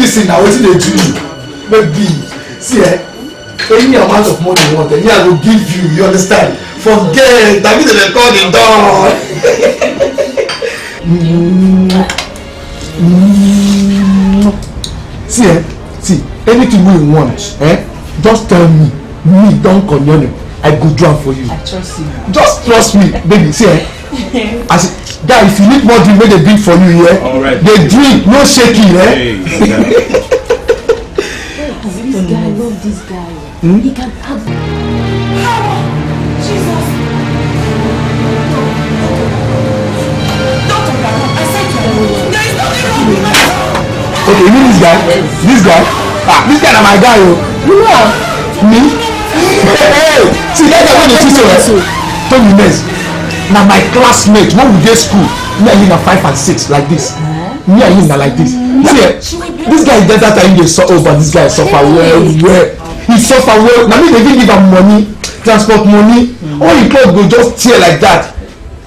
medicine na wetin dey do you maybe see eh any amount of money you want eh me i go give you you understand forget na me dey dey call the door. see eh see anything wey you want eh just tell me me don connect i go do am for you. i trust you. just trust me baby see eh as guy if you need more drink make they drink for you here yeah? right. drink no shaking yeah? hey, this guy love this guy hmm? he can act. Jesus. Doctor, I said to him, there is nothing wrong with my son. Okay, you mean this guy? This guy? Ah, this guy na my guy o. Oh. You know Me? Hey, see, that's the one you choose to. Tell me next na my classmate when we dey school me and him na five and six like this me and him na like this hmm. see eh this guy get that time he dey suffer oh this guy suffer well well he suffer well na me dey fit give am money transport money hmm. all him cloth go just tear like that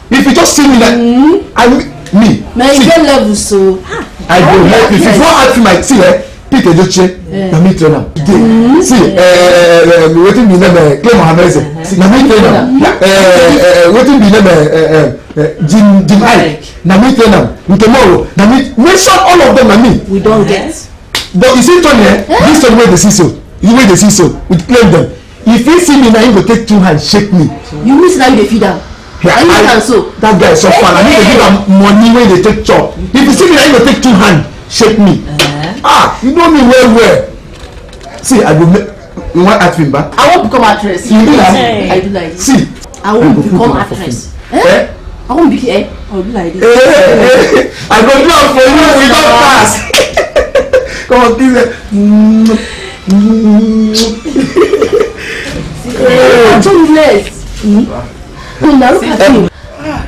if you just see me like hmm. i me see i go help you if you wan ask me my tea eh pete edochie na me train am today see eh, eh, eh, wetin be name clay mohammed say na me train wetin be name jim jim ike na me train am tomorrow na me mention all of them na me. we don get. but you see tony eh this tony wey dey see so you wey dey see so we claim them if he see me na him go take two hands shake me. you mean say na you dey feed am. Yeah, I, that guy suffer so and he dey give am money wey dey take chop if you see me na him go take two hand shape me uh-huh. ah you know me well well see i will. make you wan act me ba. i wan become actress. you be like me i do like you. see i wan become actress. Eh? eh? I won't be here. I'll be like this. Eh, eh, I go do for you. We don pass. Come on, give it. Hey. I'm too late. now look at you. Um,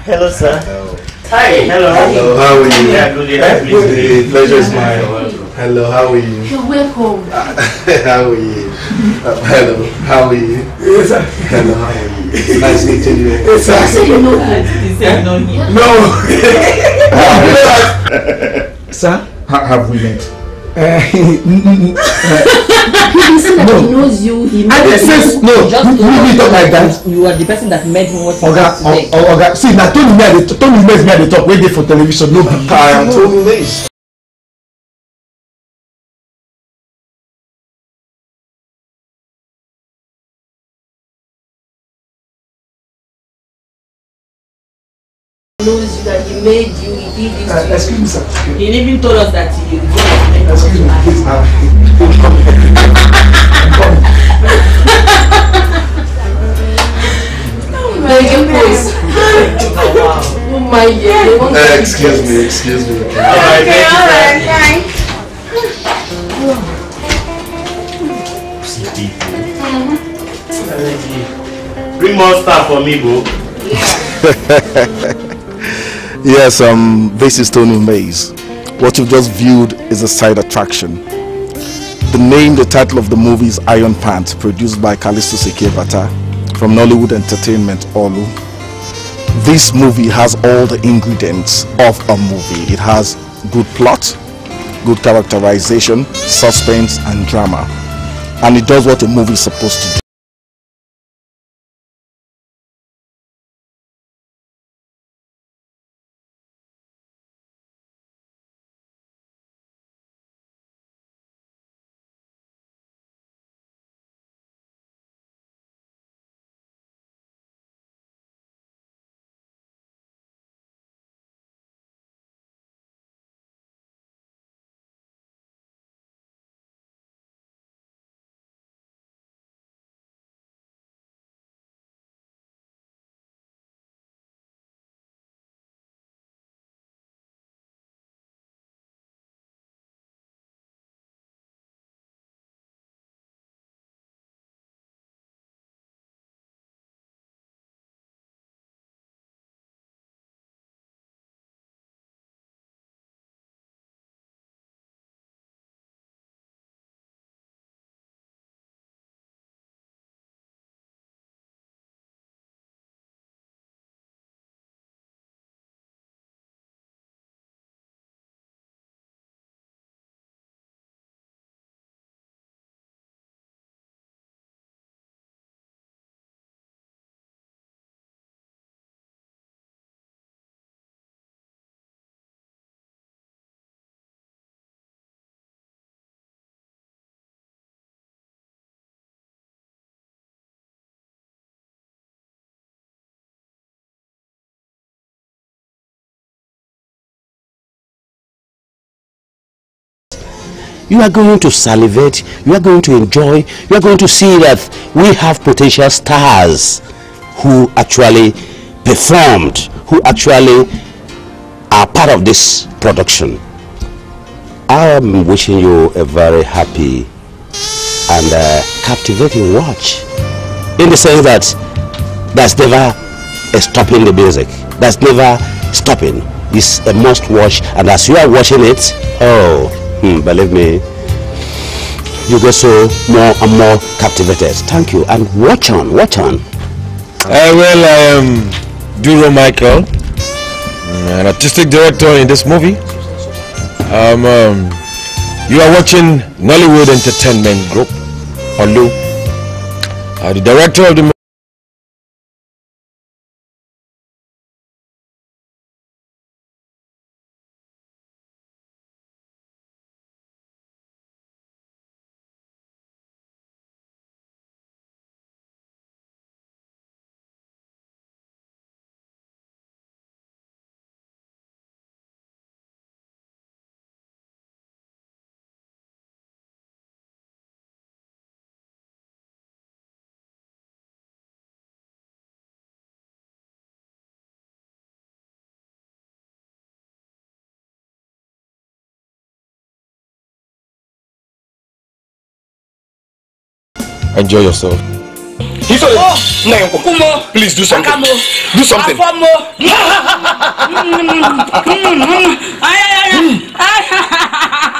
hello, sir. Hello. Hi, hello. Hello, how are you? Yeah, good day. Pleasure is mine. Hello, how are you? You're welcome. how are you? Uh, hello, how are you? Yes, sir. Hello, how are you? Nice meeting you. Yes, sir. You you know that. You said you know No. sir, ha have we met? Uh, he said that no. he knows you. He made you. Says, no, just you, you talk like that. You are the person that made him what he Oga, is today. Oga, see, now Tony me at the Tony me at the top. Wait there for television. No, no, no, no. knows you that he made you, he did this uh, Excuse me, sir. He even told us that he did Excuse me, please, ma'am. I'm coming. I'm Oh my goodness. Oh my god. Uh, excuse me, excuse me. All right, okay, all right, fine. Bring more stuff for me, bro. Yeah. Yes, um, this is Tony Mays. What you've just viewed is a side attraction. The name, the title of the movie is Iron Pants, produced by Kalisto Sekebata from Nollywood Entertainment, Olu. This movie has all the ingredients of a movie. It has good plot, good characterization, suspense, and drama. And it does what a movie is supposed to do. you are going to salivate, you are going to enjoy, you are going to see that we have potential stars who actually performed, who actually are part of this production. I am wishing you a very happy and uh, captivating watch in the sense that that's never stopping the music. That's never stopping. It's a must watch and as you are watching it, oh, Hmm, believe me, you get so more and more captivated. Thank you. And watch on, watch on. Uh, well, I am Duro Michael, mm, an artistic director in this movie. Um, um, you are watching Nollywood Entertainment Group, Olu. Uh, the director of the Enjoy yourself. Ifele, nna yẹn kọ. Please do something. Do something. Afomo.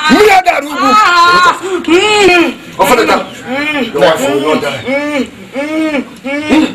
Mi yà dàrú ibu. Ọ̀fọ̀dọ̀ta. Your wife will not die. Hmm. Hmm. Hmm.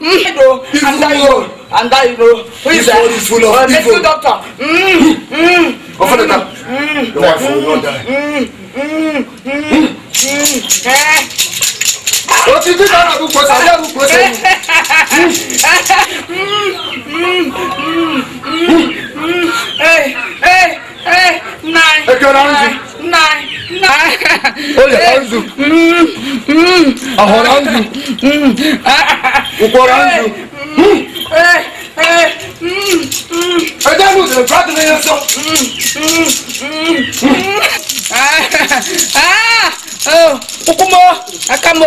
Ido, anda Ido, you, Ido. Who is that? This fool, Medical doctor. Mm, mm, mm, Your wife will not die. Mm, mm, mm, mm, eh. ti dín náírà gbogbo ṣe àyà gbogbo ṣe É que é oranzu. Olha, é, hum, hum, hum. ah, oranzu. É, a oranzu. O coranzu. Aí dá luz, eu prato na reação. Ah, ah, o cumô, a camô.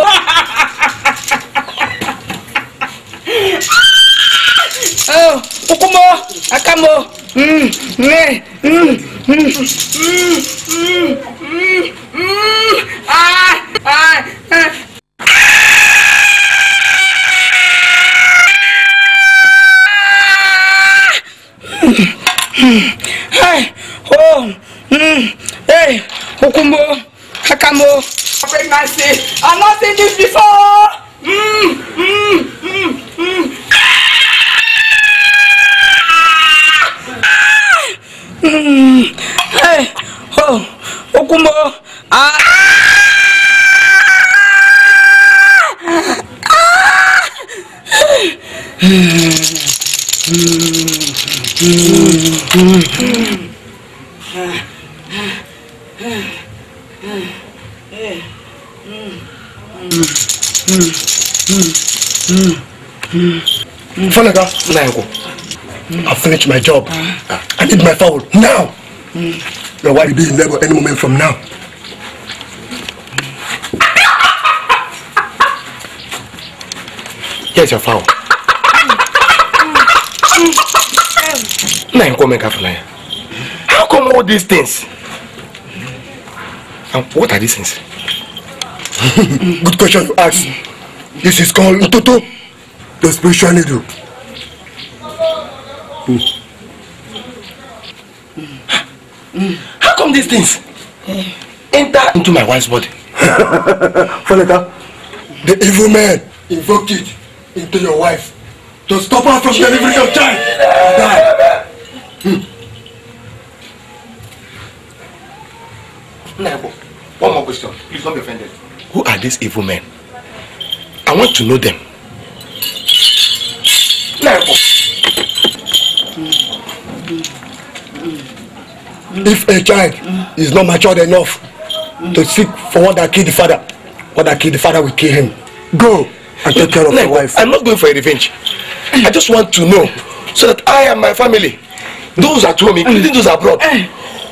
Oh, o cumô, a camô. Hum, né. Hum, hum. my job. Ah. I need my phone now. Mm. Your wife will be in labor any moment from now. Here's your phone. Now you come make a fly. How come all these things? And what are these things? Good question you ask. This is called Ntoto, the spiritual needle. Mm. things enter into my wife's body. Foleka, the evil man invoked it into your wife to stop her from delivering your child. Die. Hmm. One more question. Please don't be offended. Who are these evil men? I want to know them. If a child is not matured enough to seek for what that kill the father what that kill the father will kill him go and take care of your wife i'm not going for a revenge i just want to know so that i and my family those at home including those abroad eh.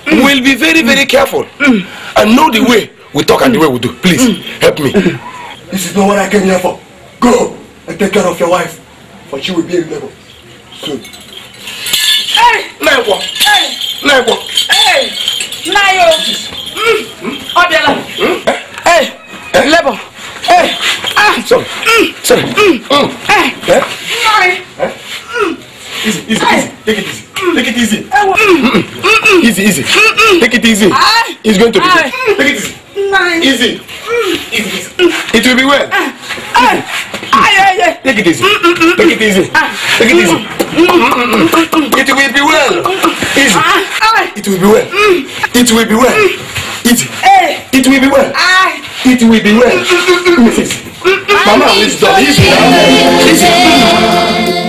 mm. will be very very mm. careful mm. and know the way we talk and the way we do please help me mm-hmm. this is not what i came here for go and take care of your wife for she will be in labor soon. Hey! Never! Hey! Never! Hey! Nayo. Ọ̀dẹ̀là. Ẹ lẹ́bọ̀. Ẹ ah. Sorry. Hmm? Sorry. Ẹ. Hmm? Hmm. Eh easy, easy, easy. Take it easy. Take it easy. Easy, easy. Take it easy. It's going to be good. Take it easy. Easy. Easy, It will be well. Easy. Take it easy. Take it easy. Take it easy. It will be well. Easy. It will be well. It will be well. Easy. It will be well. It will be well. Mrs. Mama, it's done. Easy, Easy.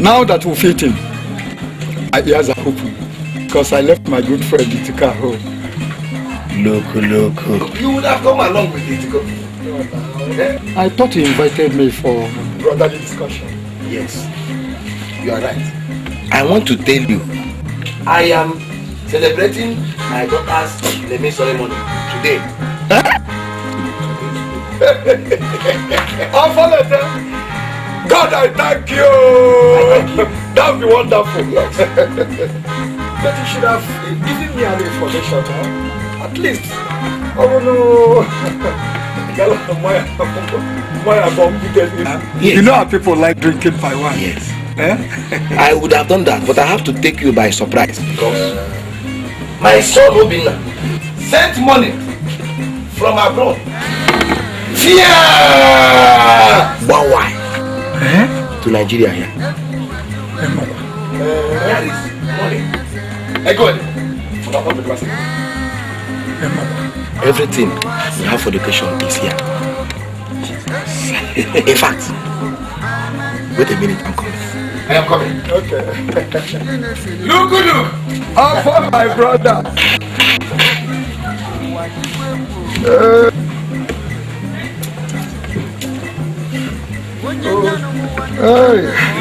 Now that we've eaten, my ears are open because I left my good friend Itika home. Loco, loco. You would have come along with Itika. I thought he invited me for brotherly discussion. Yes, you are right. I want to tell you, I am celebrating my daughter's naming ceremony today. Huh? I'll follow them. God, I thank you. I thank you. that would be wonderful. Yes. but you should have given me an information, huh? at least. Oh no. You know how people like drinking by one? Yes. Eh? I would have done that, but I have to take you by surprise. Because my son Obina sent money from abroad. Fear! But why? Eh? to Nigeria here. Everything we have for education is here. In fact, wait a minute, I'm coming. I am coming. Okay. look, look, I'm for my brother. Uh, look!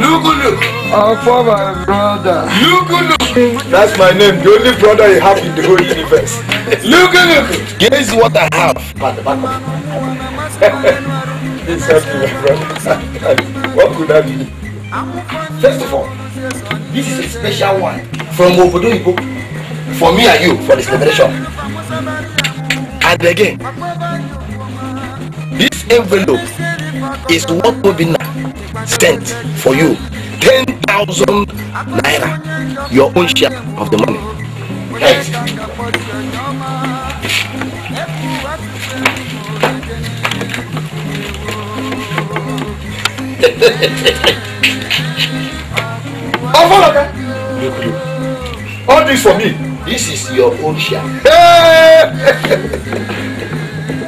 Lugulu. Our former brother. look! That's my name, the only brother you have in the whole universe. Look, look! Guess what I have. This the back my brother. what could that be? First of all, this is a special one from Obodo for me and you for this celebration. And again, this envelope is what will be sent for you. 10,000 naira, your own share of the money. Yes. Oh, All this for me. This is your own share.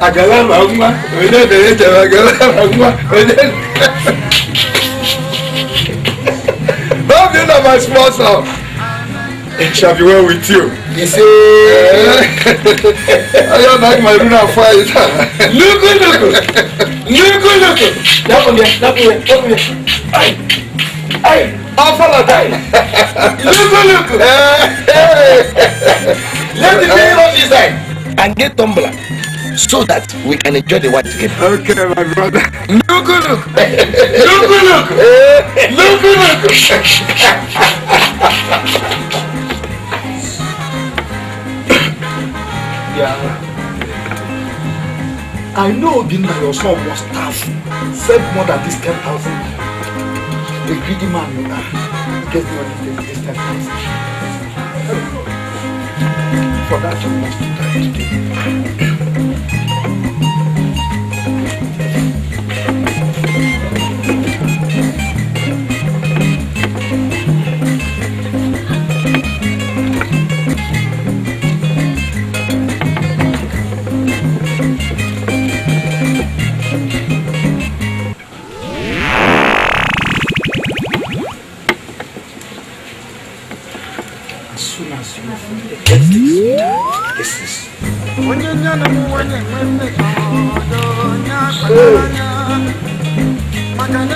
àgàlà máa ń wá orílẹ̀-èdè yẹn tẹ̀wé àgàlà máa ń wá orílẹ̀-èdè. Bob, you know my sponsor. It shall be well with you. He see, I don't like my lunar fire. Look, look, look, look, look. That one there, that one there, that one there. Aye, aye. Look, look, look. Let the name of design. And get tumbler. so that we can enjoy the wine together. Okay, my brother. Look, look. Look, look. Look, look. yeah. I know Obinna, your son was tough. Said more than this 10,000. The greedy man, you know, Get more than this 10,000. For that, you must die today.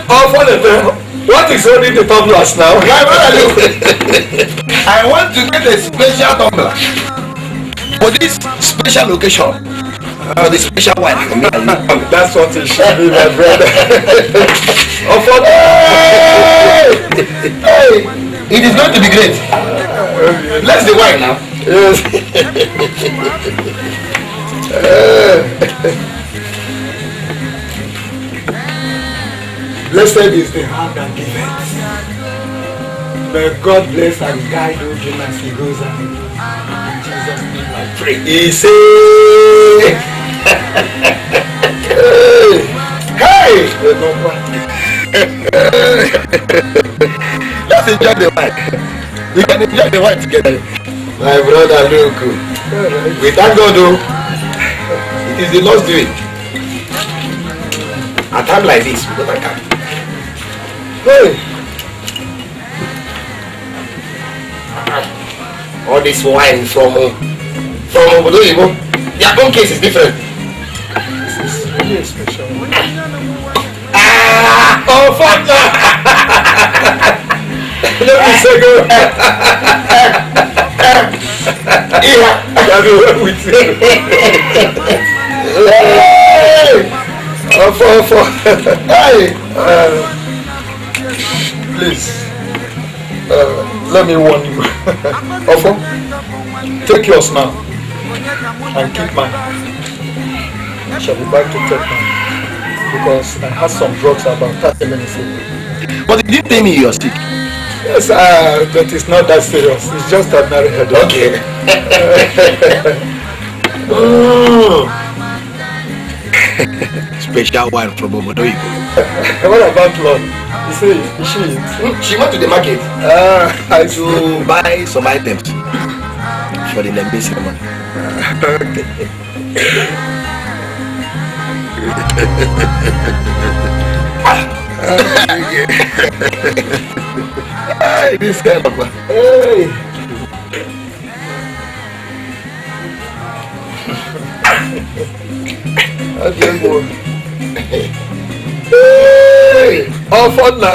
Oh, for the What is holding the tumblers now? My brother, look. I want to get a special tumbler for this special location. For the special one. That's what it should be, my brother. oh, for the... hey! hey! It is going to be great. Let's the wine now. Yes. Blessed is the heart that giveth. May God bless and guide all him as he goes out. In Jesus' name I pray. He say, Hey! Let's enjoy the wine. We can enjoy the wine together. My brother, look. We thank God, though. Is the Lord doing. At a time like this, we don't come. Hey. Uh-huh. All this wine from from Obodo Igbo, their own case is different. This is really special. Ah! Oh, fuck Let me say go. yeah, I don't know what we ọfọ ọfọ please uh, let me warn you ọfọ take yours now and keep mine shall be back to take mine because I had some drugs about thirty minutes ago. but you did tell me you are sick. Yes, uh, but it's not that serious. It's just ordinary headache. Okay. oh special wine from Omodoyibo. what about love? You say she hmm, she went to the market uh, to buy some items for the Nembe ceremony. Ah, okay. Hey, this guy, Papa. Hey. Adiós, amor ọfọ nà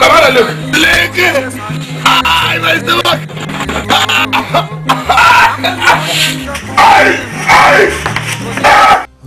Kamara look, leke, ay,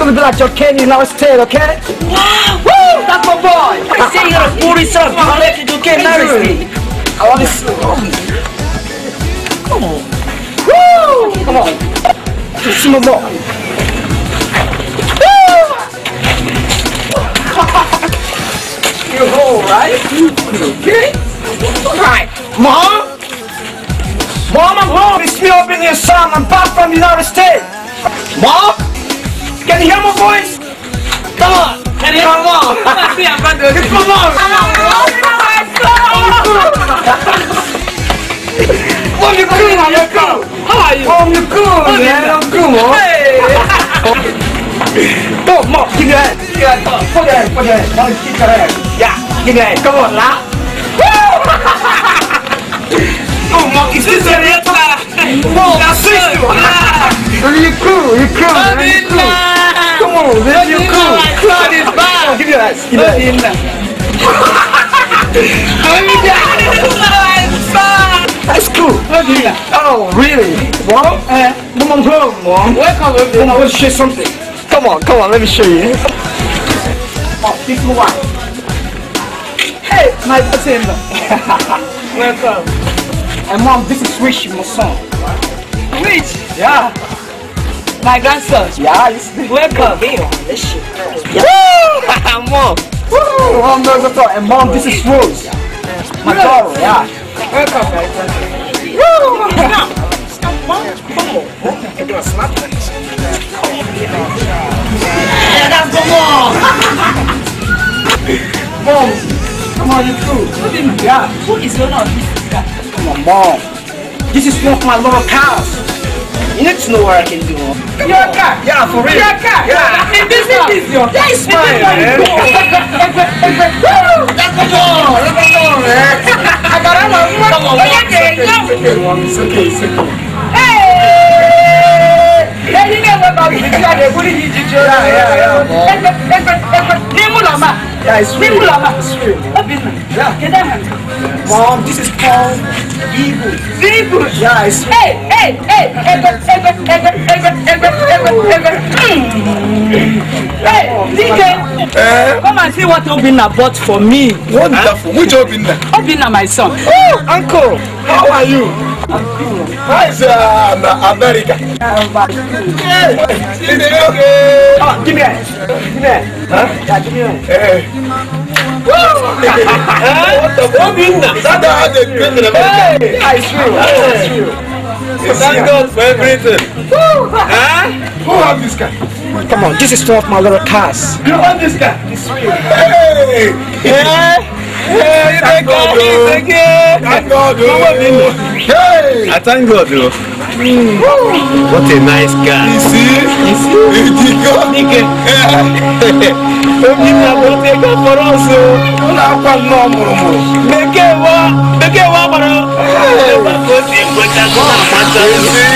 gonna be like your candy now instead, okay? Woo! That's my boy! I say you're a foolish son. i the heck you get married me? I want this. Come on. Woo! Come on. Just some more. You're all right? Okay? Alright. Mom? Mom, I'm home. It's me up in here, son. I'm back from the United States. Mom? Can you hear my voice? Come on. Can you hear my mom? I'm not doing It's my mom. Mom, you're cool. How you cool? How are you? Mom, you're cool, man. I'm cool, mom. Hey. Go, mom. Give your hand. Give your hand. Put your hand. Put your hand. Mom, keep your hand. Yeah. Give your hand. Come on, laugh. Woo! oh, mom, is this a real time? Whoa, that's it. You're cool. You're cool, man. You're cool cool. This Yo, you cool. Like, is bad. Give me that. Give me that. Give me that. That's cool. Oh, really? Well, uh, come on, come on. Welcome, everyone. I want to show you something. Come on, come on, let me show you. Oh, this one. Hey, my cousin. Welcome. And mom, this is Rich, my son. Rich? Yeah. My grandson. Yeah, Welcome. This shit. Yeah. Woo! Mom. Woo! Mom knows what's And Mom, this is Rose. My daughter, yeah. Welcome, my Woo! Mom, come on. I'm gonna slap you. Yeah, Come on. mom! mom, come on, you on. true. What did on. got? Who is your love? Come on, Mom. This is one of my little cows. You need to know what I can do. Your car. Yeah, for real. Your car. Yeah. And this is your That is mine, man. Let's go. Let's go, man. I got a lot of Come on, man. It's okay. It's okay. It's okay. Hey! Hey, you know what about Yeah, yeah, yeah. putting you to jail. Yeah, yeah, yeah. Name Ulama. Yeah, it's real. Name Ulama. It's real. What business? Yeah. Get that hand. Yeah. Mom, this is Paul. evil. Evil? Yeah, it's... Hey, hey, hey! ever, ever, ever, ever, ever, ever, ever. Hey, DK! Uh, Come and see what Obinna bought for me. Wonderful. Huh? Which Obinna? Obinna, my son. Oh, uncle! How are you? How is uh, America? Hey, give me Oh, give me a... Give me a... Huh? Yeah, give me a... Hey. Obinna. That's how they greet in America. Yeah, it's true. That's true. Thank God for everything. huh? Who have this guy? Come on, this is one of my little cars. You have this guy? It's real. Hey! Yeah! Hey, thank God, oh. thank God, oh. thank God, oh. thank God, thank God, thank God, thank Mm. What a nice guy. You see? You see? Dike. Dike. Omi na bọ̀ ṣe kọ́ fọ́rọ́ ṣe o. Ó náà pa nù ọ̀mùrùmù. Bèké wa bèké wa kọ̀rọ̀. Ẹ bá kó sí ìgbọ́jà kó máa ma jọ. You see?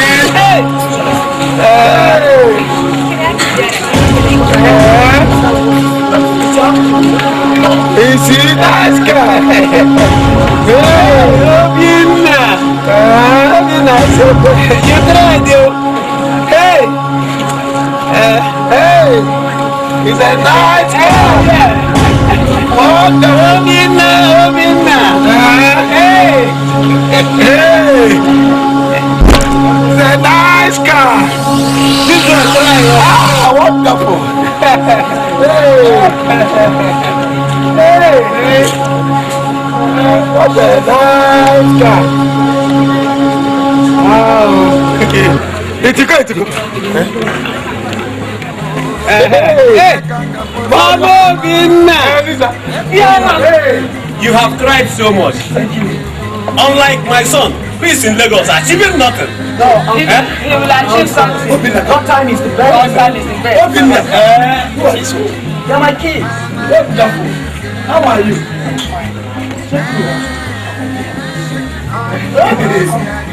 You see? Nice guy. Hey, love you. You tried, yo. Hey. Uh, hey. He said, no, it's hell, yeah. Oh, the woman now, woman now. Hey. Hey. He a nice car. This is right. Ah, wonderful. hey. Hey. What a nice guy. Etika etika. Baba Binna! You have cried so much. Thank you. Unlike my son, who is in Lagos, achieving nothing. No, he, eh? will achieve something. What time is the best? What time is the best? Obinna! Uh, eh? They're my kids. Wonderful. How are you? Check you out.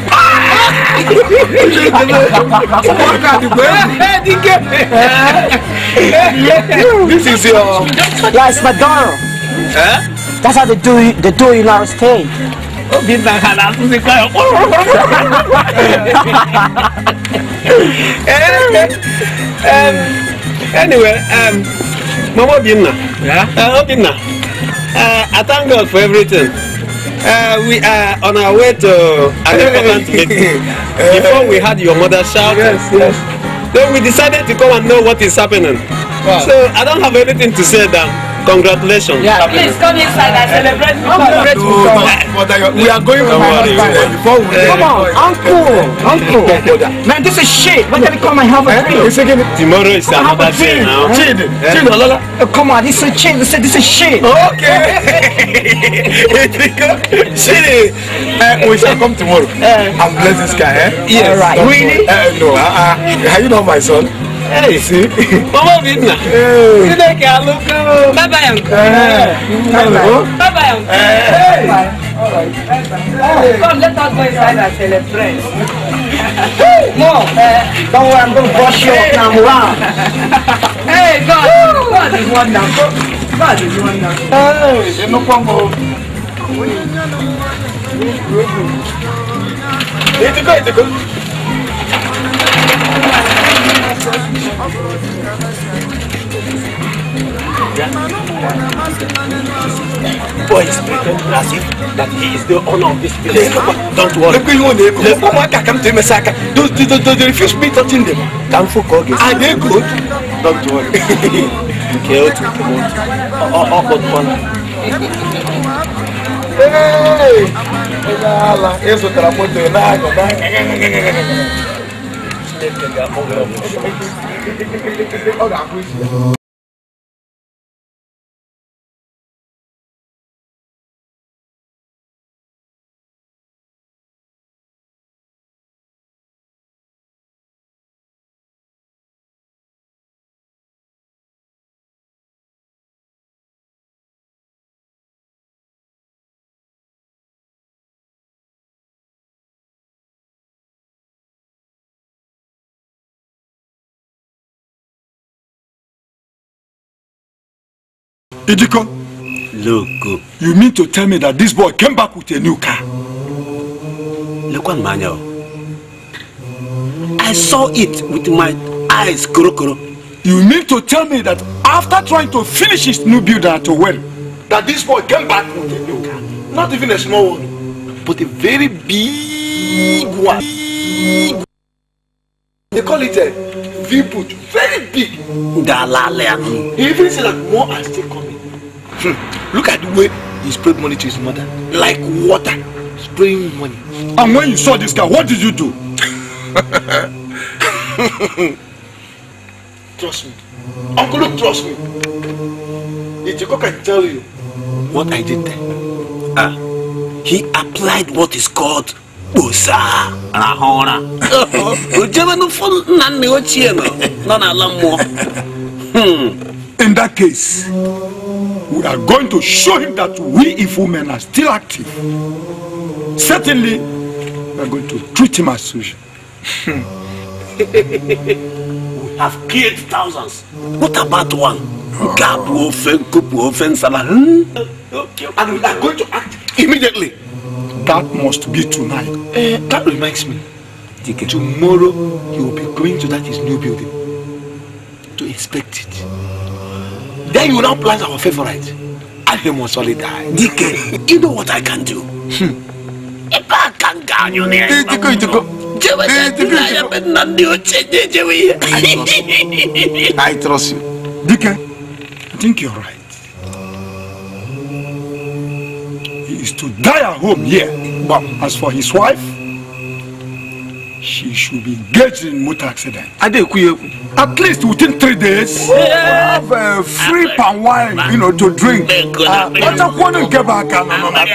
this is your. Yeah, it's McDonald. Huh? That's how they do it, they do in our state. um, anyway, um, Mama Binna. Yeah? Uh, Binna. Uh, I thank God for everything. Uh, we are on our way to an important meeting. Before we had your mother shout, yes, yes. Then we decided to come and know what is happening. Wow. So I don't have anything to say now. Congratulations. Yeah. Please come inside and celebrate. Come celebrate with us. We are going with my husband. come on, uncle, uncle. Man, this is shit. When can we come and have a eh? drink? Tomorrow is another day now. Chill, eh? chill, eh? Lola. Come on, this is chill. This is this is shit. Okay. Shit. we shall come tomorrow. Uh, and bless this guy. Eh? Yes. All right. Really? Uh, no. Uh, uh, are you not my son? sí. Mọ́mọ́ mi nà. Sílẹ̀ kí a ló bye bye. yẹn kú. bye. yẹn kú. Come, let us go inside and celebrate. Mom, don't worry, I'm gonna to brush you up now. Wow. Hey, God, God is wonderful. God is wonderful. Hey, they no come It's good, it's good. Boy is pretending that he is the owner of this place. Don't worry. Look, you know, the Omaka come to Messaka. Those they, they, they refuse me touching them. Come for Kogi. Are ah, they good? Don't worry. Care to promote. Oh, oh, but oh, one. Hey! Hey! Hey! Hey! Hey! Hey! Hey! Hey! Hey! Hey! lived in Idiko. Loco. You mean to tell me that this boy came back with a new car? Lekwan Manya. I saw it with my eyes, Kurokuro. You mean to tell me that after trying to finish his new builder at a well, that this boy came back with a new car? Not even a small one, but a very big one. Big. They call it a V-put, very big. Dalale. Even see that more are still coming. Hmm. Look at the way he sprayed money to his mother. Like water. Spraying money. And when you saw this guy, what did you do? trust me. Uncle Luke, trust me. If Ichiko can tell you what I did there. Ah. Uh, he applied what is called kposa rahụra o jebe n'ụfọ nna nna ochie nọ n'ala mmụọ hmm. in that case we are going to show him that we, if women, are still active. Certainly, we are going to treat him as such. we have killed thousands. What about one? Gabu ofen, kupu ofen, salah. Hmm? And we are going to act immediately. That must be tonight. Uh, that reminds me. Tomorrow, he will be going to that his new building to inspect it. Then you will now plant our favorite. Ahim will surely die. DK, you know what I can do? If hmm. I can gain your name. Eh, itiko, itiko. Jewe, I am in Nandi I trust you. DK, I think you're right. He is to die at home here. But as for his wife, she should be getting motor accident. I think we, At least within three days, have uh, free pan wine, you know, to drink. But I want to get back on my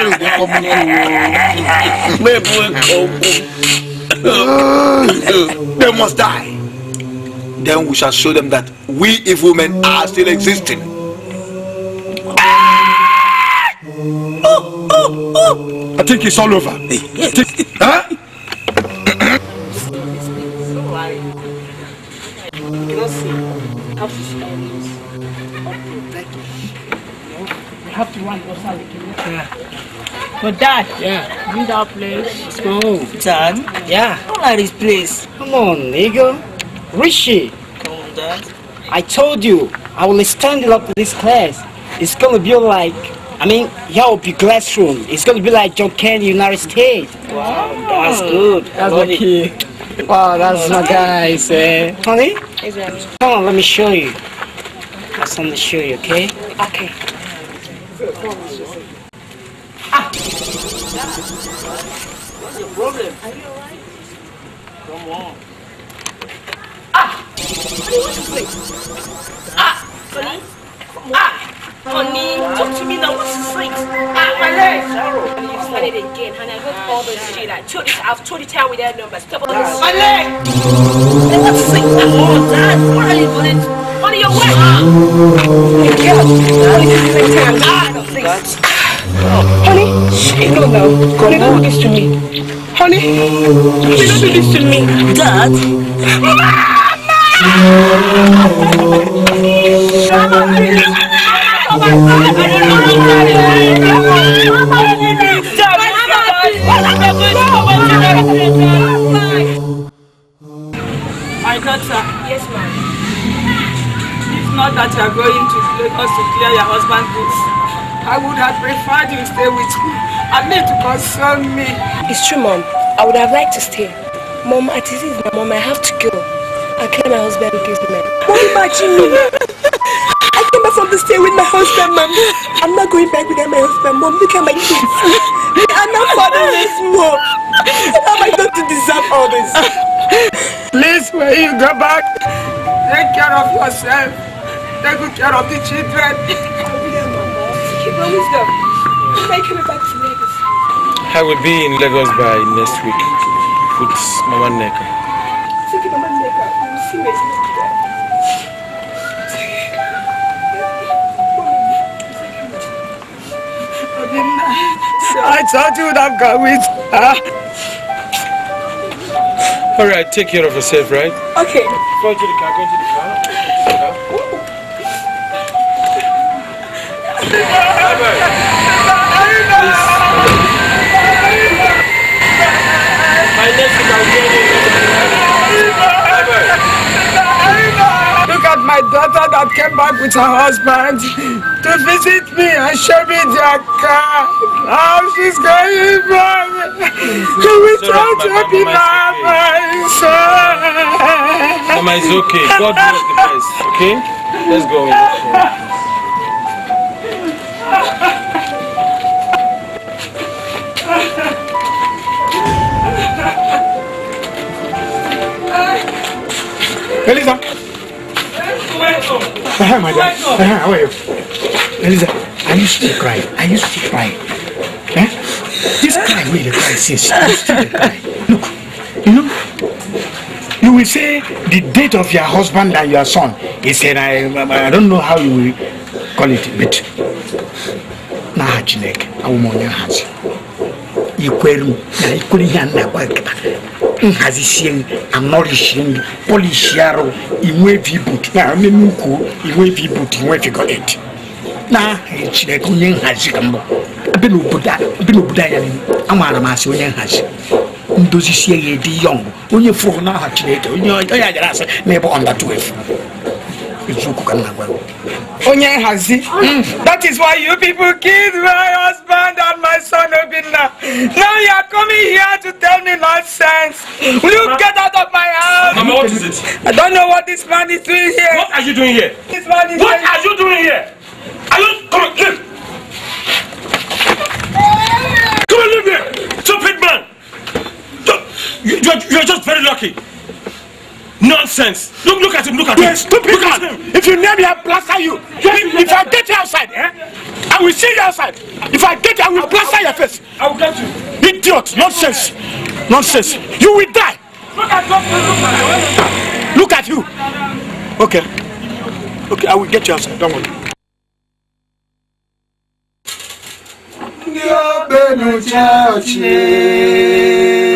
They must die. Then we shall show them that we evil men are still existing. I think it's all over. Think, huh? cannot see. You have to see we have to run outside. Yeah. But dad, yeah. Bring that place. Let's go. Dad? Yeah. Don't like this place. Come on, nigga. Rishi. Come on, dad. I told you, I will stand up to this class. It's gonna be like, I mean, yeah, will be classroom. It's gonna be like John Kennedy, United States. Wow, that's oh. good. That's lucky. Wow, that's my guys. eh? Honey? Come on, let me show you. I just want to show you, okay? Okay. Ah. What's your problem? Are you alright? Come on. Ah! Honey, what's your place? Ah! Honey? Ah! Honey, talk to me now. What's the six? Ah, my leg. Sorrow. And you started again, honey. I heard all those ah, shit. Like, told it. I've told you out with that number. Stop all this. My leg. And what's the six? I'm all that. What are you doing? Honey, you're wet. Hey, girl. Honey, this is the time. Ah, Oh. Honey, shit, no, no. Honey, don't do this to me. Honey, please don't do this to me. Dad? Mama! Mama! Oh my daughter. Yes, ma'am. If not that you are going to us to clear your husband's goods, I would have preferred you stay with me I need to console me. It's true, mom. I would have liked to stay. Mom, at this is my mom. I have to go. I clear my husband's business. What about you? because want to stay with my husband, mom. I'm not going back without my husband, mom. Look at my kids. I'm not fatherless, mom. How am I going to deserve all this? Please, when you go back, take care of yourself. Take good care of the children. Keep wisdom. me back to Lagos. I will be in Lagos by next week with Mama Neka. Take Mama Neka. You will see me. I told you that I'm coming. Huh? All right, take care of yourself, right? Okay. Go to the car, go to the car. Go the car. my daughter that came back with her husband to visit me and show me their car. oh, she's going back. She will try to be my, my son. Mama, it's okay. God knows the best. Okay? Let's go. in. Elisa! Hi, madam. Hi, how are you? Eliza, I used to cry. I used to cry. Eh? This cry really cries. Yes, I used to cry. Look, you know, you will say the date of your husband and your son He said I, I don't know how you will call it, but n'aha Chineke, awụm onye ahazi. I kwere m na ikwere ihe a na-agwa nhazisie anọrishie polishie arụ inwevi but inwevi but inwevi chineke onye nhazi ka mbụ ebe n'obodo anya amaara m asị onye nhazi ndozi ya edi yọng onye fụrụ n'aha chineke onye ajara asị na ọnda 12 eziokwu ka m na-agwa onye nhazi ah. hmm, that is why you people killed that my son Obinna. Oh, Now you are coming here to tell me nonsense. Will you get out of my house? Mama, what is it? I don't know what this man is doing here. What are you doing here? This man is What are you doing here? Are you come on, leave. Come on, leave here. Stupid man. You you're just very lucky. Nonsense. Look, look at him. Look at You're him. Stupid look at him. If you name me, I'll plaster you. If, I get you outside, eh? I will see you outside. If I get you, I will I'll, plaster your face. I will get you. Idiot. Nonsense. Nonsense. You will die. Look at, look at you. Okay. Okay, I will get you outside. Don't worry. Ndị ogbenụ chee ochie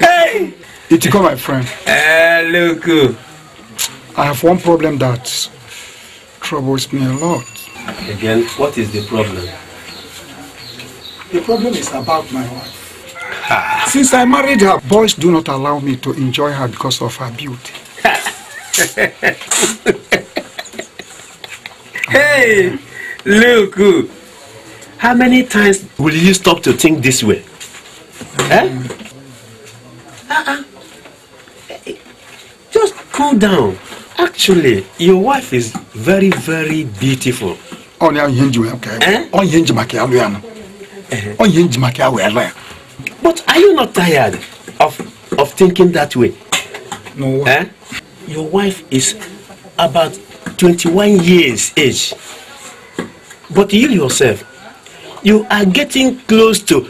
hey! Itiko, my friend. Hello, eh, uh, I have one problem that troubles me a lot. Again, what is the problem? The problem is about my wife. Since I married her, boys do not allow me to enjoy her because of her beauty. hey, look. Uh, How many times will you stop to think this way? Eh? Uh-uh. Just cool down. Actually, your wife is very, very beautiful. ọ na-enye njima ka onye njima ka ya eh? ya nọ eh? onye njima ka ya But are you not tired of of thinking that way? No. Eh? Your wife is about 21 years age. But you yourself you are getting close to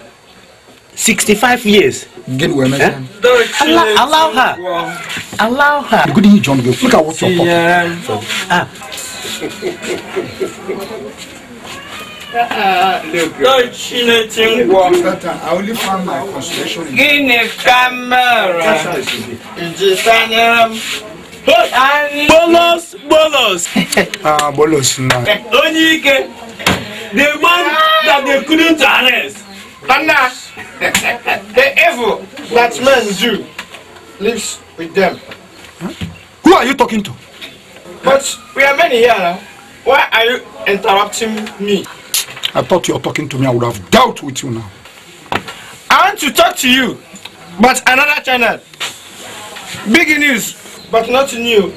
sixty-five years. Get well, eh? allow, allow her. Allow her. Good evening, John. Look at what you're yeah. Ah. Don't she let him I only found my consolation. Guinea camera. Bolos, bolos. Ah, bolos. Onye ike the man that they couldn't arrest. And now, the evil that man do lives with them. Huh? Who are you talking to? But we are many here now. Why are you interrupting me? I thought you were talking to me. I would have dealt with you now. I want to talk to you, but another channel. Big news, but not new.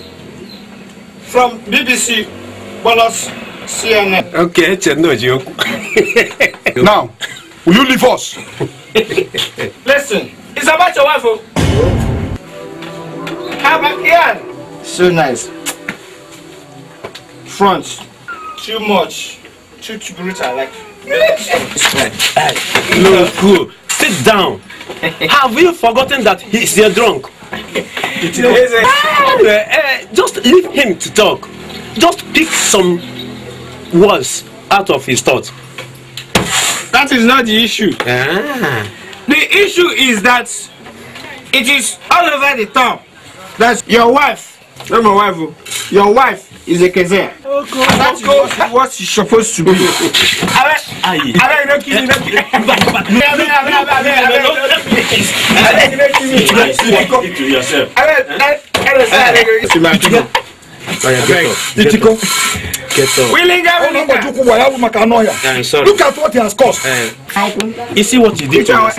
From BBC Bolos CNN. Okay, it's no joke. now, will you leave us? Listen, it's about your wife. How about Ian? So nice. Front. Too much. Too too brutal. Like. no, cool. Sit down. Have you forgotten that he's a drunk? ah, uh, just leave him to talk. Just pick some was out of his thought. That is not the issue. Ah. The issue is that it is all over the top that your wife, not my wife, your wife is a kezer. Okay. That is what, what she's supposed to be. Abeg, abeg, no kill me, no kill me. Abeg, abeg, abeg, abeg, no kill me. Abeg, no kill me. Abeg, to yourself. Abeg, abeg, abeg, abeg. Abeg, Titiko. Look at what he has caused. Eh. you see what he did to himself.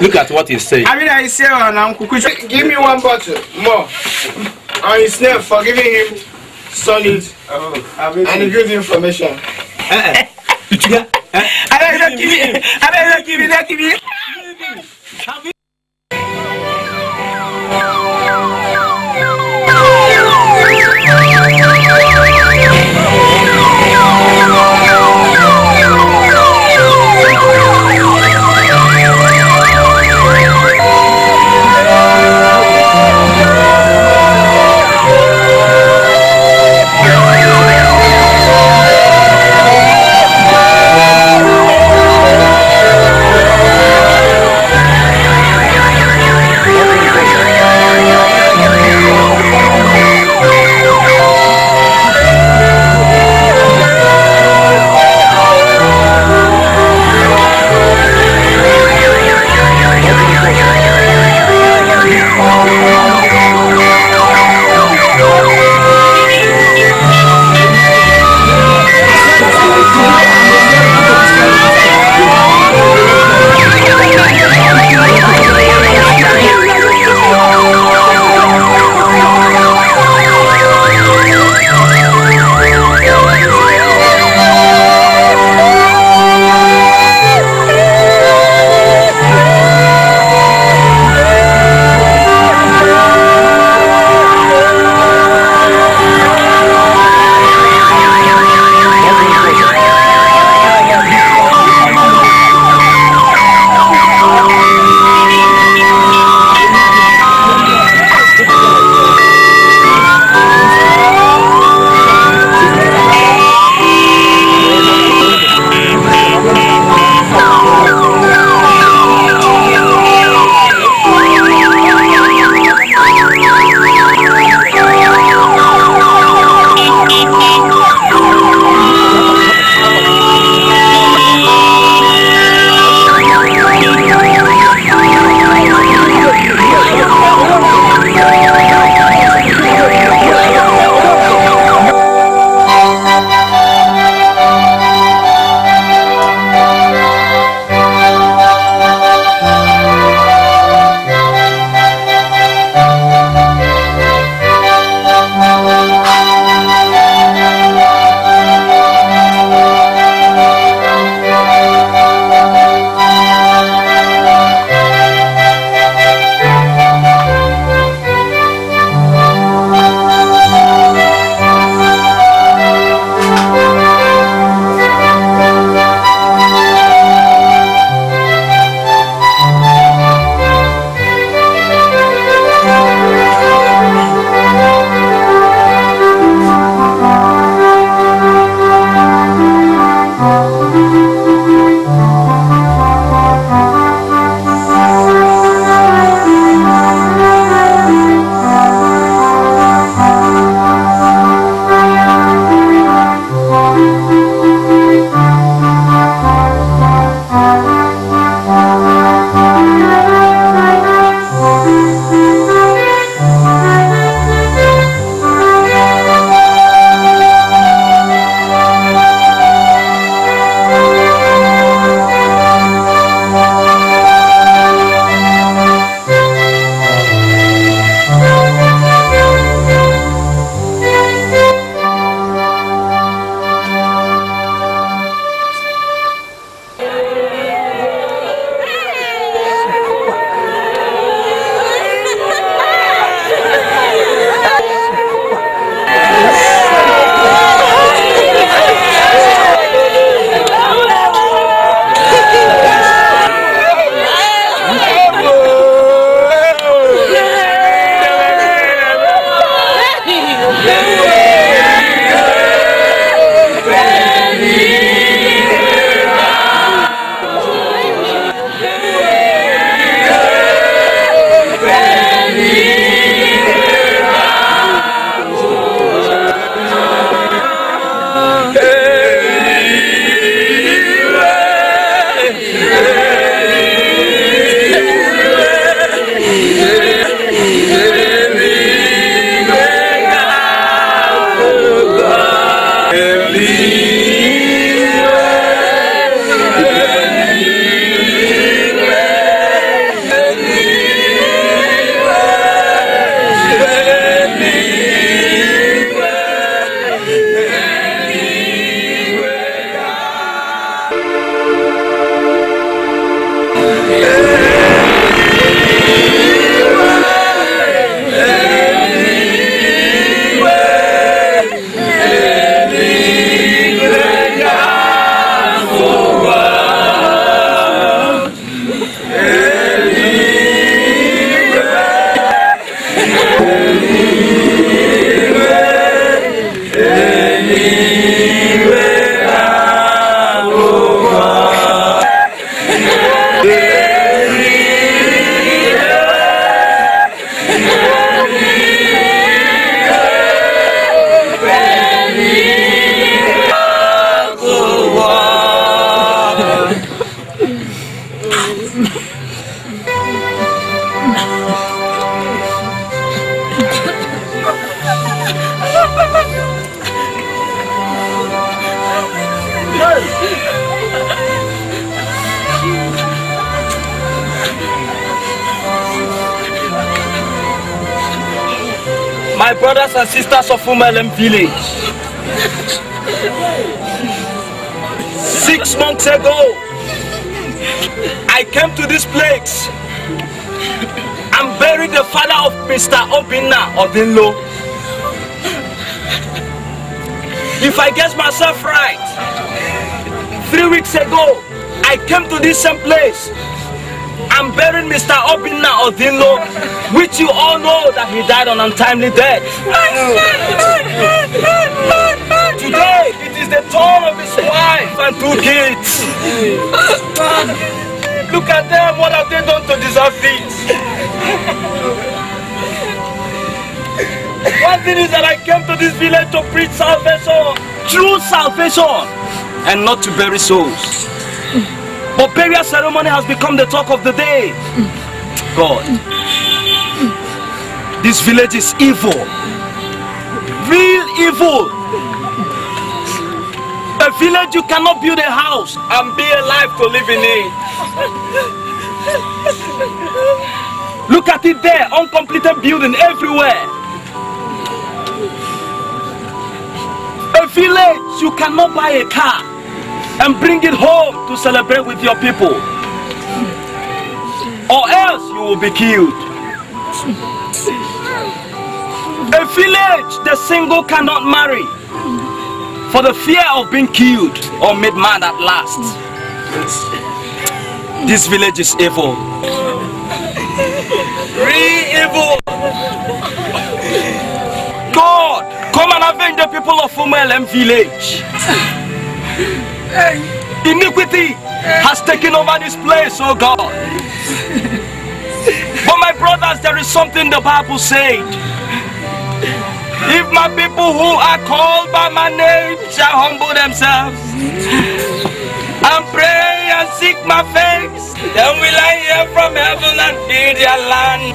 Look at what he saying. I mean, I say, oh, give me one bottle more on his name for giving him solid oh, and good information. Uh-uh. give me. I don't give me. I give me. for Malam village. Six months ago, I came to this place and buried the father of Mr. Obinna Odinlo. If I guess myself right, three weeks ago, I came to this same place and buried Mr. Obinna Odinlo, which you all know that he died on untimely death. All of his wife and two kids. Look at them, what have they done to deserve this? One thing is that I came to this village to preach salvation, true salvation, and not to bury souls. But burial ceremony has become the talk of the day. God, this village is evil, real evil village, you cannot build a house and be alive to live in it. Look at it there, uncompleted building everywhere. A village, you cannot buy a car and bring it home to celebrate with your people. Or else you will be killed. A village, the single cannot marry for the fear of being killed or made mad at last. This village is evil. evil. God, come and avenge the people of Umelem village. Iniquity has taken over this place, oh God. But my brothers, there is something the Bible said. If my people who are called by my name shall humble themselves and pray and seek my face, then will I hear from heaven and heal their land.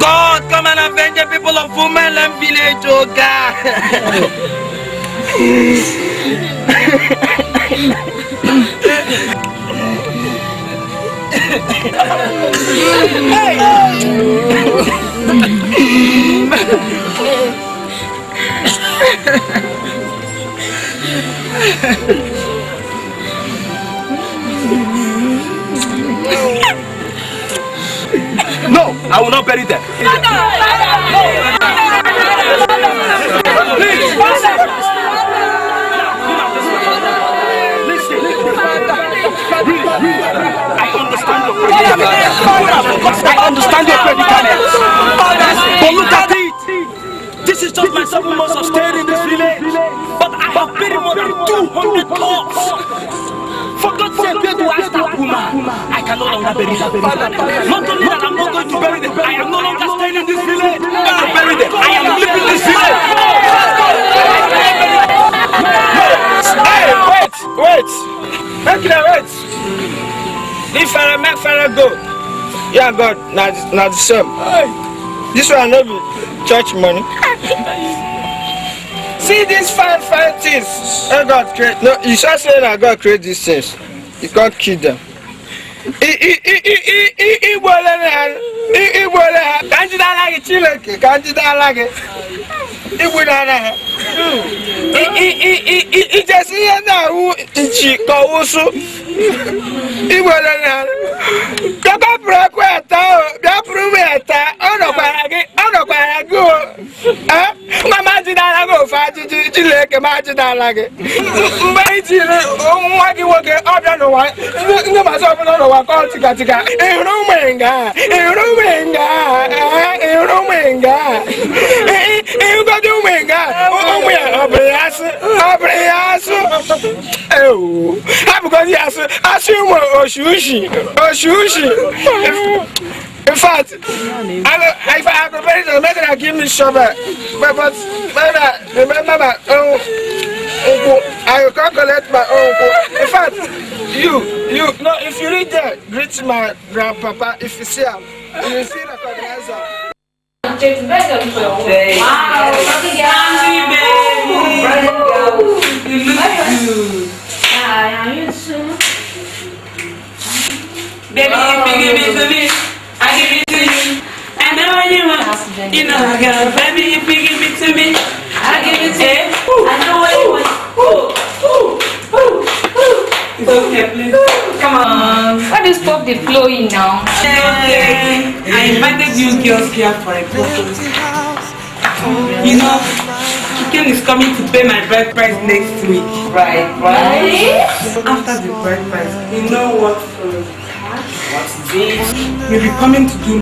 God, come and avenge the people of Women and village, oh God. hey. No, I will not bury them. Father, father, no. Please, father. I understand your predicament. I understand your predicament. But look at it. This is just my seven months of stay. 200 pots. For God's sake, where do I start, woman? I can no longer bury them. Not only that, I'm not going to bury them. I am no longer staying in this village. Not to bury them. I am leaving this village. Hey, wait, wait. Make them wait. If I make Pharaoh go, yeah, God, not, not the same. This one no be church money see these fine fine things wey god create no you sure say na god create these things you can't kill them. igbo ole na igbo ole ha ka njide anaghị chineke ka njide anaghị igbu na anaghị ijesi ihe na-awụ nchi ka ọwụsụ igbo ole na bịapụrụ ekwe ete o bịapụrụ uwe ete ọnọkwara gị ọnọkwara gị o nwa m gị ofe ajụjụ Chineke m ajidala gị mgbe ị nwa gị nwoke ọbịa n'ụwa ndị mazi ọbụla n'ụwa ka tikatika ịhụrụ ụmụ nga ịhụrụ ụmụ nga ịhụrụ ụmụ nga ịhụgodi ụmụ nga ụmụ ya ọ bụrụ ya asụ ọ bụrụ ya asụ ewu ha bụgodi ya asụ asụ ụmụ oshushi oshushi In fact, I, if I had prepared it, maybe I give me shovel. Uh, but, but maybe, remember that own uncle. I can't collect my uncle. In fact, you, you, no, if you read that, greet my grandpapa. If you see him, you see the organizer. Wow, look at you. Baby. You look good. Hi, how you doing? Baby, oh, you give it to me, I give it to you. I know what you want, you know I got it. Baby, if you give it to me, I give it to you. I know what you want. Ooh, ooh, ooh, ooh. It's okay, please. Come on. Why do you stop the flowing now? Okay. I invited you girls here for a purpose. You know, chicken is coming to pay my bride price next week. Right, right. After the bride price, you know what? Uh, You'll be coming to do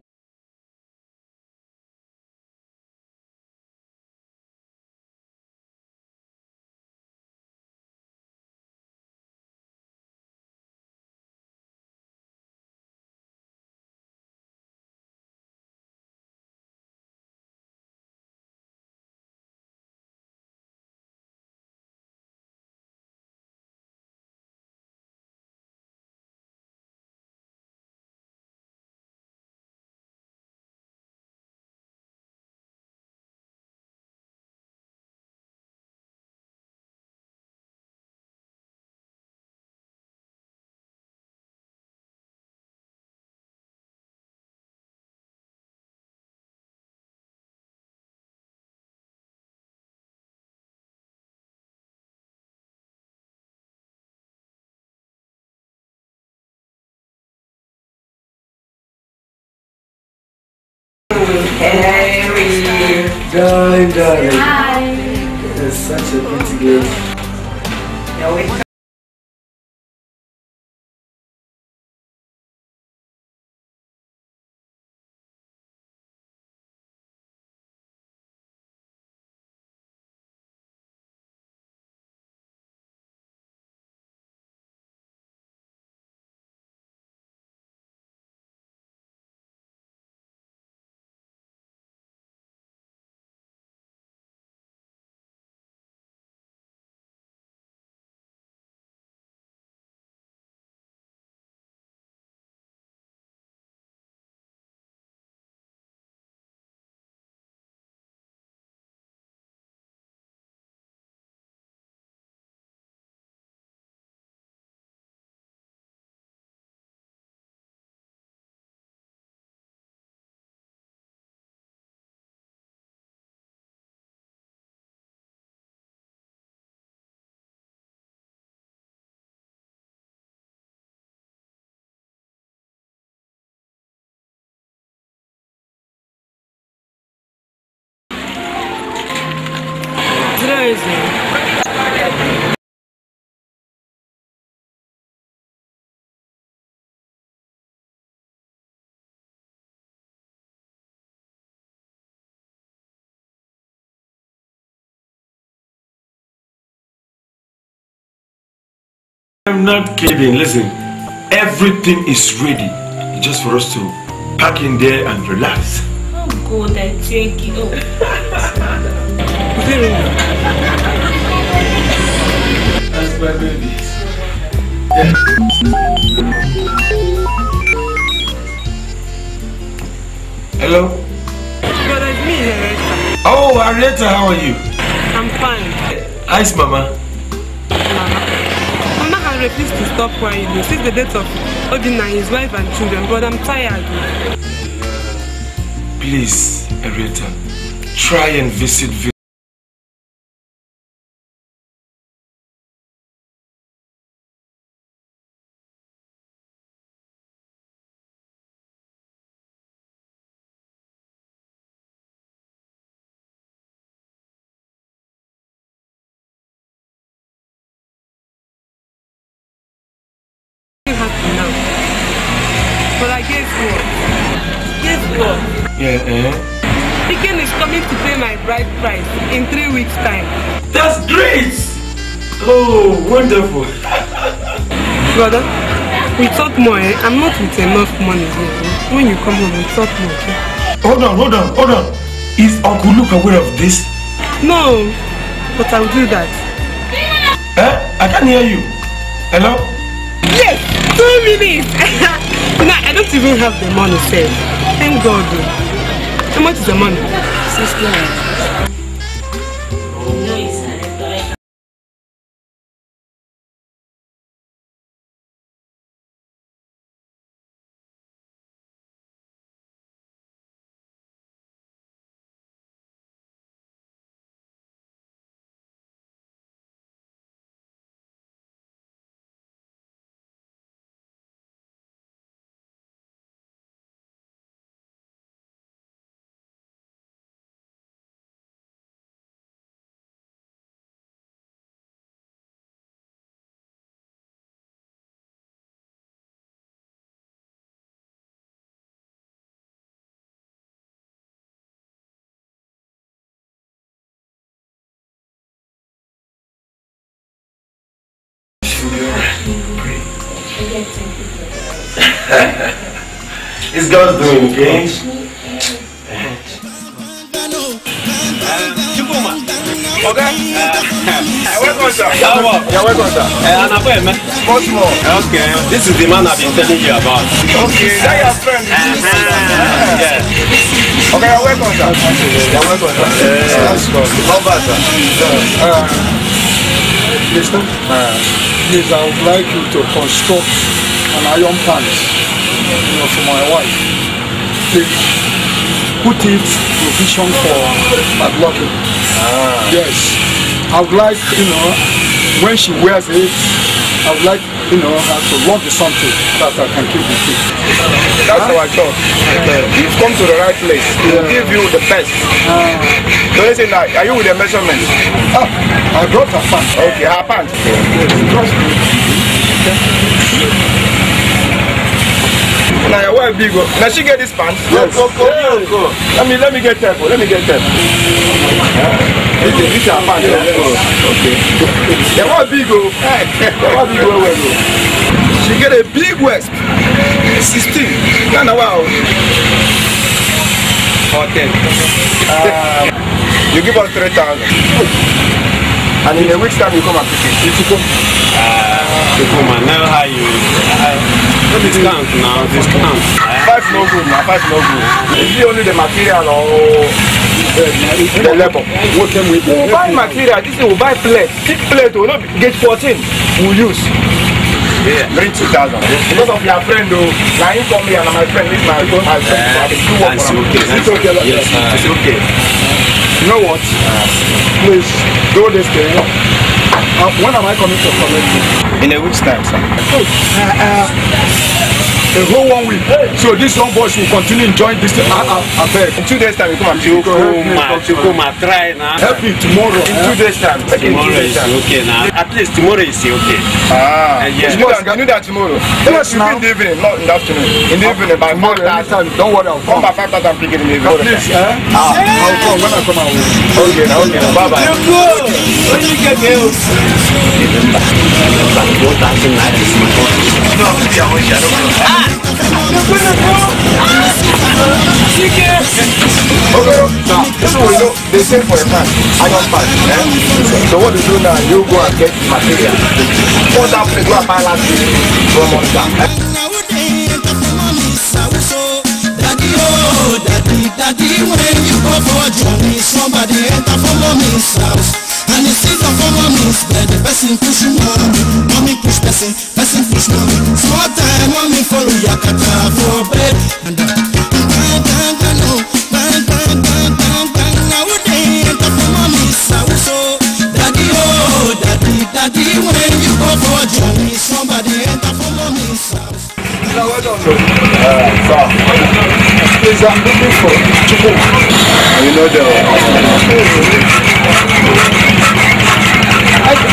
Hi. It is such a pretty girl. crazy. I'm not kidding. Listen, everything is ready. just for us to pack in there and relax. Oh, God, I take it. Oh. this. Hello? God, it's me, Areta. Oh, Areta, how are you? I'm fine. Ice, Mama. Mama. Mama has refused to stop crying since the death of and his wife and children, but I'm tired. Please, Areta, try and visit careful. Brother, we talk more, eh? I'm not with enough money, brother. When you come home, we talk more, okay? Hold on, hold on, hold on. Is Uncle Luke aware of this? No, but I'll do that. Eh? I can't hear you. Hello? Yes, two minutes. you I don't even have the money saved. Thank God. How much is the money? Six dollars. pray. it's God's doing, okay? Okay. Uh, welcome, sir. yeah, welcome, sir. Uh, an appointment. Okay. This is the man I've been telling you about. Okay. Is that your friend? uh Yeah. Okay. welcome, sir. You're welcome, sir. Uh, That's good. Not bad, sir. Uh, Listen. Uh, please, I would like you to construct an iron plant you know, for my wife. Please, put it provision for padlocking. Ah. Yes. I would like, you know, when she wears it, I would like, you know, us uh, to launch something that I can keep with you. That's how our job. Okay. You've come to the right place. We'll give you the best. Uh, so listen, are you with the measurements? Ah, I brought a pants. Okay, her pants. Yes, trust Okay. Now, where big? Now oh. she get this pants. Yes. Go, go, go, go. Let me let me get careful. Let me get careful. Yeah. big big big fan de okay yẹ wọ big o yẹ wọ big well well o she get a big waist. sixteen ghana wa o okay um, you give us three thousand and in a week time you come and pick it. come. Uh, and know how you? Uh, No discount now, discount. Five no good now, five no good. Is it only the material or the labor? What can we do? We buy material, this thing we buy plate. Thick plate, we not get fourteen. we use. Yeah. Bring two thousand. Because of your friend though, now you come here and my friend, this my friend, my friend, uh, I do work for him. It's okay. Yes, uh, it's okay. You know what? Please, do this thing. Uh, when am I coming to collect it? In a week's time, sir. Hey, oh, uh, uh, the whole one week so this young boy will continue enjoying this thing uh, uh, abeg. in two days time you come and come, home come. take home ma try now. help me tomorrow. in two days time. tomorrow is okay now. at least tomorrow is okay. ah uh, yes. tomorrow i knew that tomorrow. yes na in the evening not in the afternoon. in the ah, evening by five don't worry i'll come. come by five thousand in the evening. please eh. ah i'll come when i come out. okay okay na bye bye. Okay, now, this one we know, they say for a man, I don't pass, eh? So what you do now? You go and get material. Put down the go and buy last week from on down, eh? daddy, when you go for a journey, somebody enter for mommy's house and you see the former moves where the person push mommy mommy push person person push mommy small time mommy follow yakata for bed and uh, is I'm looking for. You know the. Uh,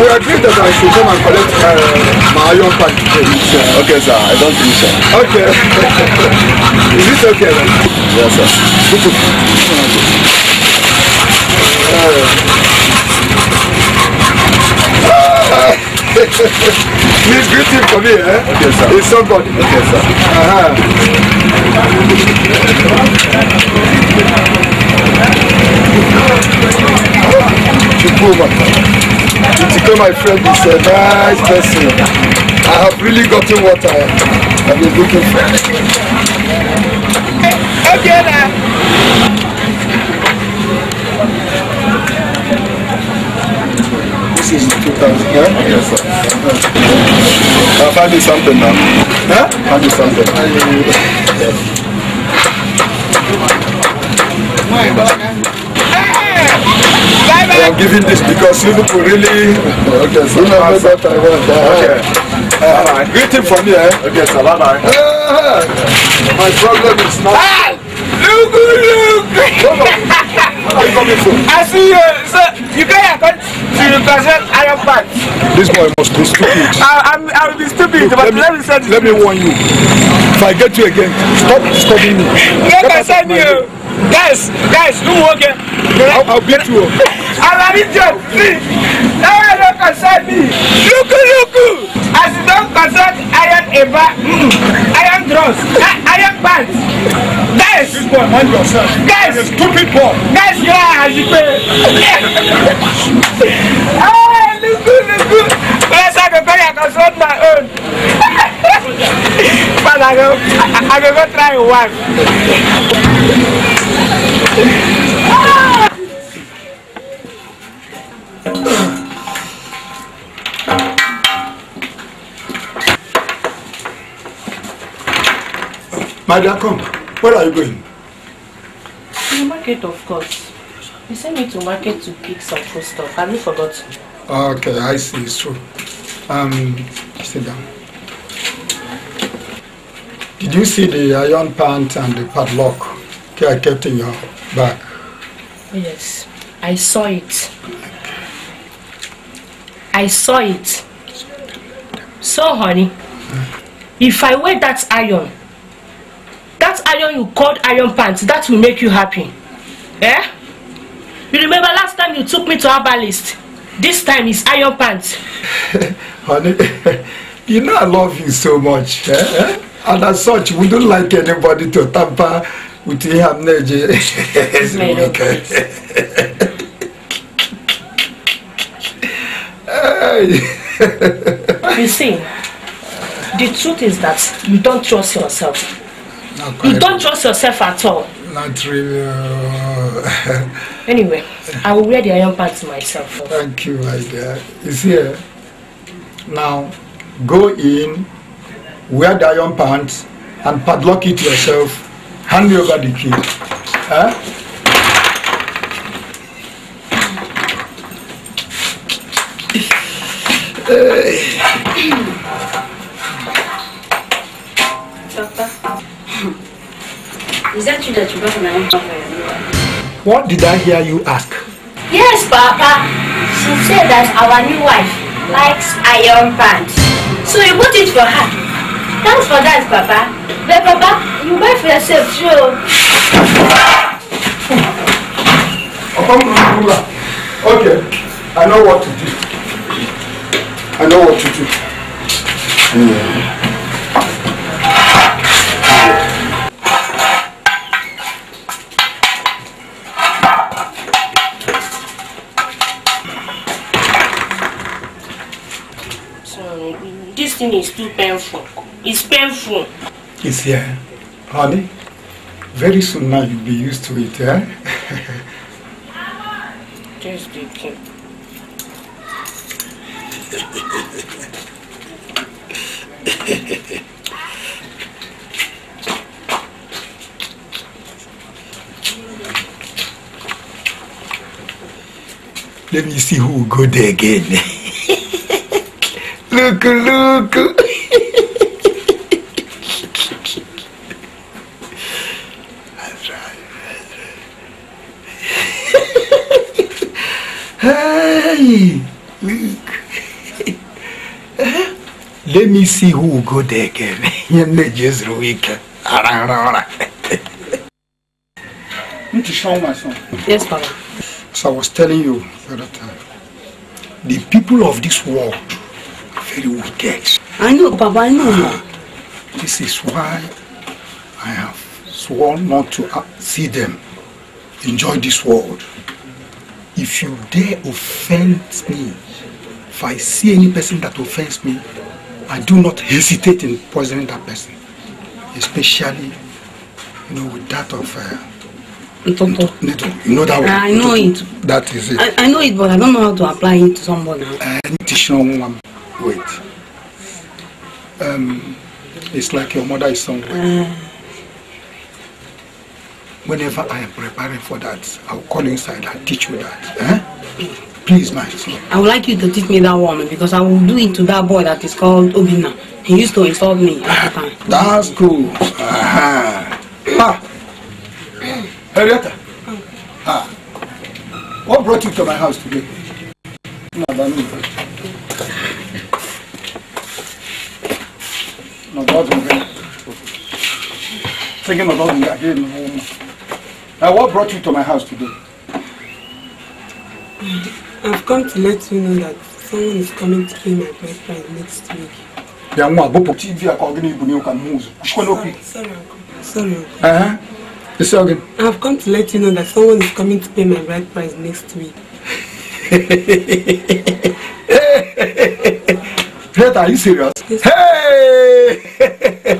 we agreed that I should come and collect uh, my iron pack today. Okay, sir. I don't think so. Okay. Is this okay then? Yes, sir. Good to Please greet for me, eh? Okay, sir. It's somebody. Okay, sir. Uh -huh. Chukwuma. Chitike, my friend, is a nice person. I have really gotten what I have been looking for. Okay, now. This is 2000, yeah? Yes, sir. I'll find you something now. Huh? Find you something. Yes. I'm giving this because Liverpool really. Okay, so you know what I want. Okay. Uh, greeting from here. Okay, so bye bye. my problem is not. Look, look! Come on. are you coming for? I see you, sir. You can't come to the person I am back. This boy must be stupid. I, I'm, I will be stupid, look, but let me, let me say this. Let me warn you. If I get you again, stop studying me. Yes, I said you. Guys, guys, do work. I'll, I'll beat you our region free. Now no concern me. Luku As you don concern iron eba, mm, iron dross, iron bands. Guys. This boy mind yourself. Guys. stupid boy. Guys, you are as you pay. Ah, luku luku. Yes, I go carry. I can solve my own. but I go, I, I go go try one. My dear, come. Where are you going? To the market, of course. You sent me to market to pick some food stuff. Have you forgotten? Ah, okay, I see. It's true. Um, sit down. Did you see the iron pants and the padlock I kept in your bag? Yes, I saw it. I saw it. So, honey, if I wear that iron, iron you called iron pants that will make you happy eh you remember last time you took me to herbalist this time is iron pants. honey you know i love you so much eh? and as such we don't like anybody to tamper with your energy. okay. you see the truth is that you don't trust yourself you don't trust yourself at all. Not really. Uh, anyway, I will wear the iron pants myself. Thank you, my dear. You see, eh, now go in, wear the iron pants, and padlock it yourself. Hand me over the key. Huh? Hey. Papa. Is that you that you brought my own What did I hear you ask? Yes, Papa. She said that our new wife likes iron pants. So you bought it for her. Thanks for that, Papa. But Papa, you buy for yourself, sure. Okay, I know what to do. I know what to do. Yeah. fasting is too painful. It's painful. It's here. Honey, very soon now you'll be used to it, yeah. Just the king. Let me see who will go there again. Look, look. that's right. hey, look. Let me see who will go there again. You're just son. Yes, Papa. So I was telling you the other uh, time, the people of this world very wicked. I know, Baba, I know. Uh, this is why I have sworn not to uh, see them enjoy this world. If you dare offend me, if I see any person that offends me, I do not hesitate in poisoning that person, especially, you know, with that of. Uh, Ntoto. You know that ah, one? I know Ntoto. it. That is it. I, I know it, but I don't know how to apply it to somebody. Uh, wait. Um, it's like your mother is somewhere. Whenever I am preparing for that, I'll call inside and teach you that. Eh? Please, my son. I would like you to teach me that woman because I will do it to that boy that is called Obina. He used to insult me time. That's good. Aha. Ah. Henrietta. Ah. What brought you to my house today? No, thinking about me again. Now, what brought you to my house today? I've come to let you know that someone is coming to pay my boyfriend next week. Yeah, you you Sorry, sorry, uncle. Sorry, uncle. Uh-huh. Say again. I've come to let you know that someone is coming to pay my bride price next week. Greta, are you serious? Yes. Hey!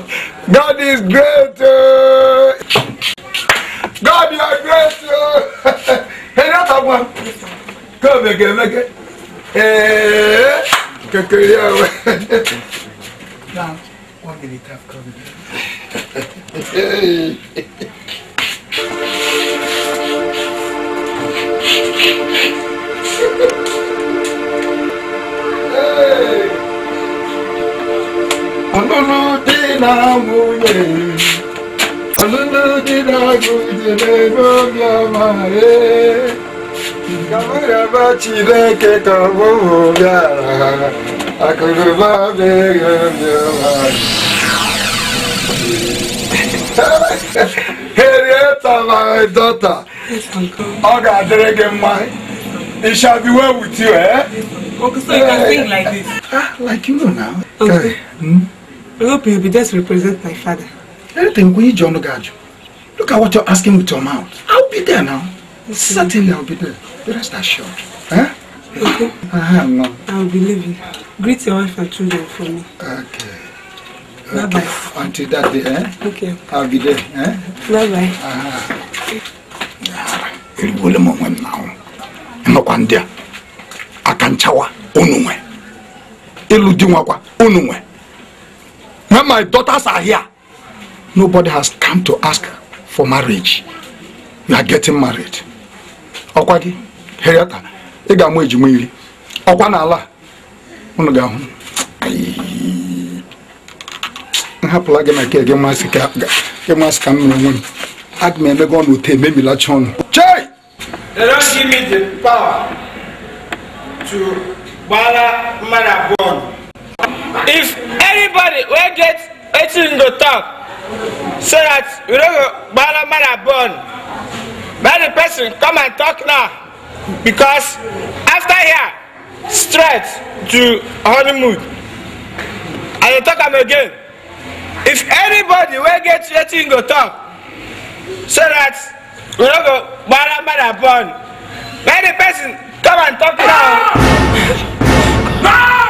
God is great. Uh. God, you are great. Uh. hey, that's a one. Come again, eh, it. Hey, kekere awo. Now, one minute have come. Hey. hey. I don't know. 나무에 얼른지라고 지내보며 말해 가물아 바치레게 가보야라 아그르바 베르며 헤리에타 마이 도타 어가 드레게 마이 It shall be well with you, eh? Okay, so you can sing like this. Ah, like you know now. Okay. okay. Mm -hmm. I hope you'll be there to represent my father. Anything we John Ogaju. Look at what you're asking with your mouth. I'll be there now. Okay. Certainly I'll be there. But rest assured. Huh? Eh? Okay. Uh, no. I'll be leaving. Greet your wife and children for me. Okay. Bye okay. bye. Until that day, eh? Okay. I'll be there, eh? Bye bye. Ah. Uh-huh. Eribole mo nwe now. Nokwa ndị a. Akanchawa unu nwe. Ịlụ di nwakwa unu nwe when my daughters are here nobody has come to ask for marriage you are getting married ọkwa gị heriata ị ga-amụ ejima iri ọkwa n'ala unu ga-ahụ nhapụla gị na nke gị masị ka m mere onwe m aga m emego ọnụ ute ememilacha ọnụ chei They don't give me the power to gbara mmadụ abụọ if anybody wey get wetin to talk so that we no go gbara mara born make the person come and talk now because after here straight to honeymoon i dey talk am again if anybody wey get wetin go talk so that we no go gbara mara born make the person come and talk now. Ah!